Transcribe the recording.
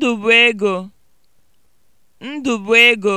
Ndụbụego Ndụbụego